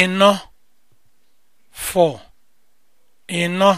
ịnọ four ịnọ